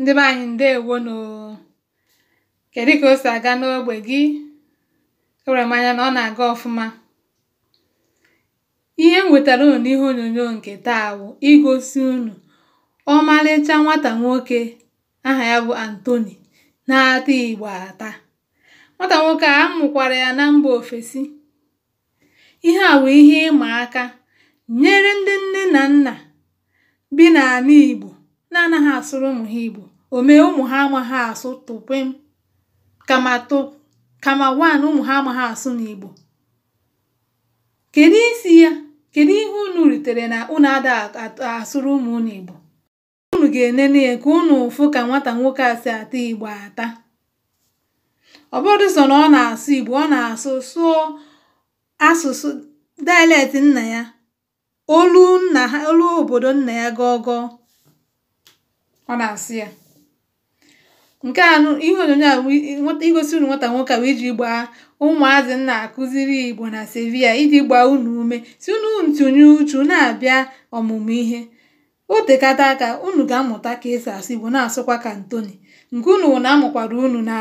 ndị be anyị ǹdeèwonù kèdụ ka o si aga n'ogbe gị ewere m anya na ọ na-aga ọfụma ihe nwetara wètàrà unu n'ihe onyonyo nke taa wụ̀ igosi unu ọmalịcha nwata nwoke aha ya bụ Anthony na-ata Igbo ata nwata nwoke a amụkwara ya na mba ofesi ihe a bụ ihe ịma aka nyere ndị nne na nna bi n'ala Igbo na-anaghị asụrụ ụmụ ha Igbo o mee ụmụ ha amaghị asụ tụpem kama tụ kama wan ụmụ ha amaghị asụ n'Igbo kedu isi ya kedu ihe unu ritere na unu ada asụrụ ụmụ unu Igbo unu ga-enene ya ka unu ụfụ ka nwata nwoke a si ata Igbo ata ọ bụrụ so na ọ na-asụ Igbo ọ na-asụ sụọ asụsụ dialect nna ya olu nna ha olu obodo nna ya gọgọọ ọ na-asị ya nke a ihe onyonyo a igosi unu nwata nwoke a bụ iji gbaa ụmụazị nna akụziri igbo na sevia iji gbaa unu ume si unu ntụnye uchu na-abịa ọmụmụ ihe otekata aka unu ga-amụta ka esi asụ igbo na-asụkwa ka ntoni nke unu na-amụkwara unu na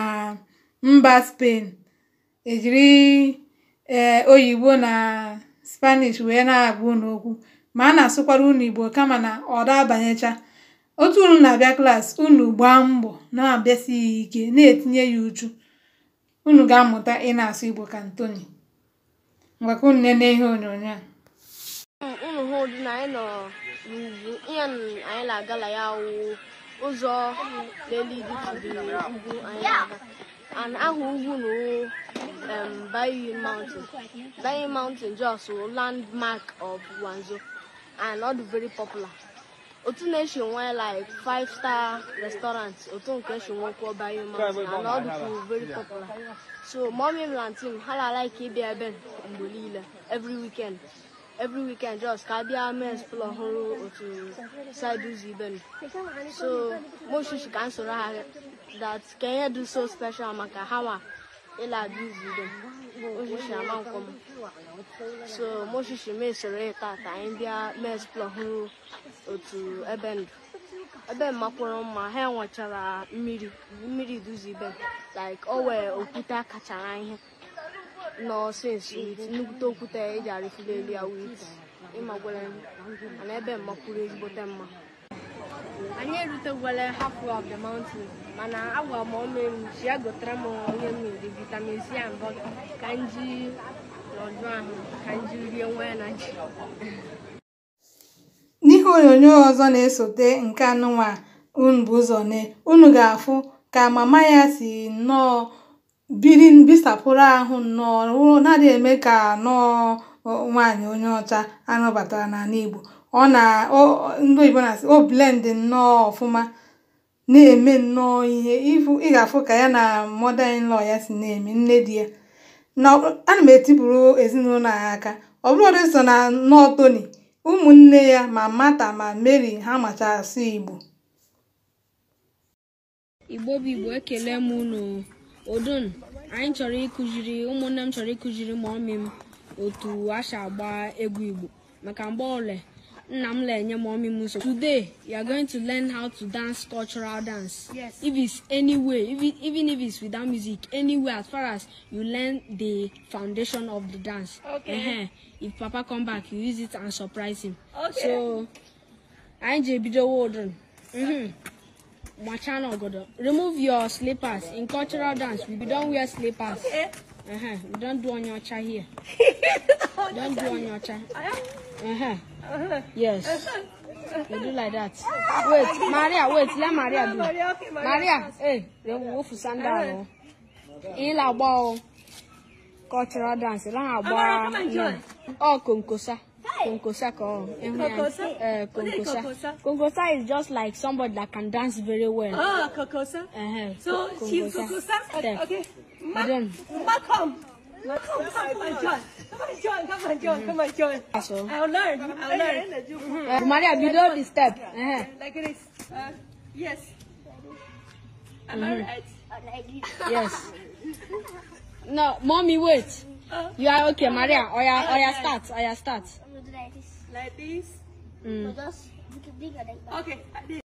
mba spain ejiri ee oyibo na spanish wee na abụ unu okwu ma a na-asụkwara unu igbo kama na ọ da abanyecha otu unu na-abịa klaasị unu gbaa mbọ na-abịasighị ike na-etinye ya uchu unu ga-amụta ị na-asụ Igbo ka Ntoni ngwa ka unu nene ihe onyonyo a unu hụ ụdị na agala ya ụzọ leliditiri ugwu anyị na-aga and aha ugwu na Bayi Mountain Bayi Mountain just landmark of Wanzo and ọ dị very popular otu na-esi nwe like five star restaurant otu nke esi nwe kwuo bayo mountain and all ọ dịkwu very popular so mommy and na aunty m ha na-alike ịbịa ebe mgbe niile every weekend every weekend just ka abịa mee spl ọhụrụ otu side ụzọ ibe m so moshishi ka m soro ha that Kenya do so special maka ha nwa ịla dị ụzọ ibe m Hoje chamam como. So, Moshe Shime sere otu ebe ndụ. Ebe makwụrụ mma ha enwechara mmiri mmiri ibe like o wee okwute kachara ihe nọ okwute eji arịfụlelu ya wit ịmagwere ebe mmakwụrụ mma anyị erutewere half of the mountain mana agwa m ọnụ elu si ya gotara m onye mmiri vitamin c and bọta ka m ji n'ọdụ ahụ ka m ji rie nwa ya na ji n'ihe onyonyo ọzọ na-esote nke anụnwa unu bụ ụzọ ne unu ga-afụ ka mama ya si nnọọ biri bisapụrụ ahụ nnọọ na-adịghị eme ka nnọọ nwaanyị onye ọcha anọbatara n'ala Igbo ọ na ndị oyibo na-asị o blend nnọọ ọfụma na-eme nnọọ ihe ị ga-afụ ka ya na mother in law ya si na-eme nne di ya na ana m etipụrụ ezinụlọ ya aka ọ bụrụ so na nnọọ Tony ụmụnne ya ma mata ma Mary ha macha asụ Igbo Igbo bụ Igbo ekele m unu odon anyị chọrọ ịkụziri ụmụnne m chọrọ ịkụziri ma ọmị m otu a agba egwu Igbo maka mgbe ole Namle Nyamomi Muso. Today, you are going to learn how to dance cultural dance. Yes. If it's any if it, even if it's without music, anywhere as far as you learn the foundation of the dance. Okay. Uh-huh. If Papa come back, you use it and surprise him. Okay. So, I'm J.B.D. Warden. Mm-hmm. My channel, Godo. Uh, remove your slippers. In cultural dance, we don't wear slippers. Okay. Uh-huh. We don't do on your chair here. don't do on your chair. Uh-huh. Yes. You do like that. Wait, Maria, wait, let Maria do. Maria, hey, the wolf sandal. In la ball. Cultural dance. La ball. Oh, Konkosa. Konkosa ko. Eh, Konkosa? Konkosa. Konkosa is just like somebody that can dance very well. Oh, Konkosa. Uh eh, -huh. Eh. So, she's Konkosa? Okay. Come. Come come Come Come on, on, on, on, join! join! join! join! I'll learn. I'll learn. Maria, you know the step. Like this. Uh, yes. Am I right? Yes. No, mommy, wait. You are okay, Maria. Or ya, or ya start. Or ya start. Like this. Like this. Mm. Okay.